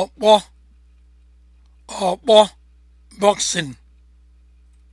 ọkpọ ọkpọ bọksịn.